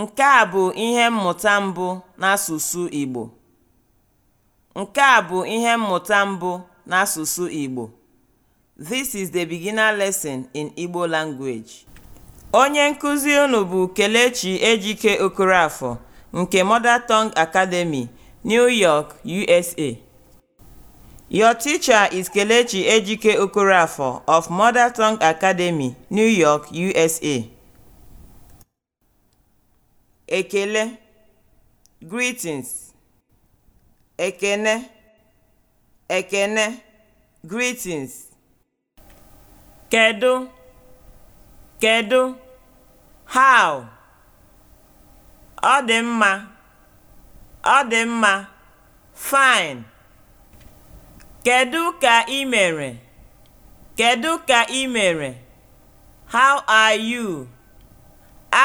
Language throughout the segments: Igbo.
Nke a bụ ihe mmụta mbụ n'asụsụ Igbo. This is the beginner lesson in Igbo language. Onye nkuzi unu bụ Kelechi Ejike Okorafor nke Mother Tongue Academy, New York, USA. Your teacher is Kelechi Ejike Okorafor of Mother Tongue Academy, New York, USA. ekele (greetings), ekene (ekene) (greetings), kedụ kedu? how, ọ dị mma (ọ dị mma), fine kedụ ka ị mere Kedu ka ị mere how are you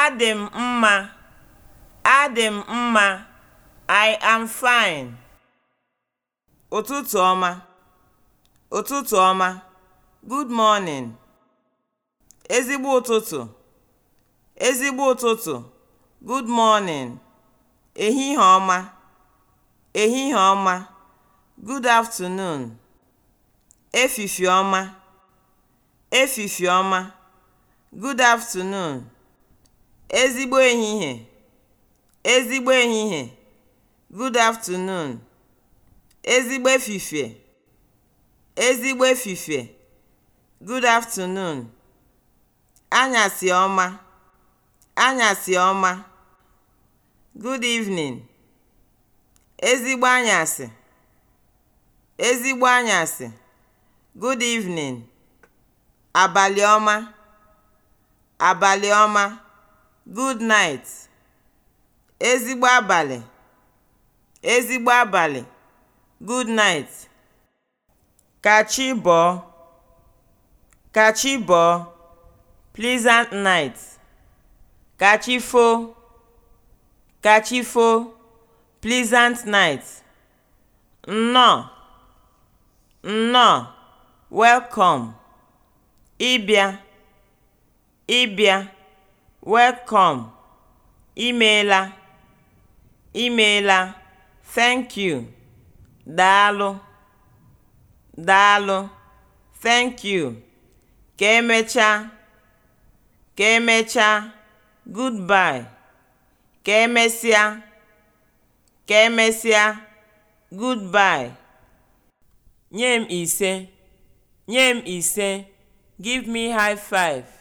adị m mma Adị m mma. I am fine. Ụtụtụ ọma. Ụtụtụ ọma. Good morning. Ezigbo ụtụtụ. Ezigbo ụtụtụ. Good morning. Ehihie ọma. Ehihie ọma. Good afternoon. Efifi ọma. Efifi ọma. Good afternoon. Ezigbo ehihie. ezigbo ehihie good afternoon ezigbo efifie ezigbo efifie good afternoon anyasị ọma anyasị ọma good evening ezigbo anyasị ezigbo anyasị good evening abalị ọma abalị ọma good night ezigbo abalị, ezigbo abalị, good night, ka chi bọọ, ka chi bọọ, pleasant night, ka chi ka chi pleasant night, nnọọ, nnọọ, welcome, ịbịa, ịbịa, welcome, imeela. Imeela. Thank you. Daalụ. Daalụ. Thank you. Ka emechaa. Ka emechaa. Goodbye. Ka emesịa. Ka emesịa. Goodbye. Nye m ise. Nye m ise. Give me high five.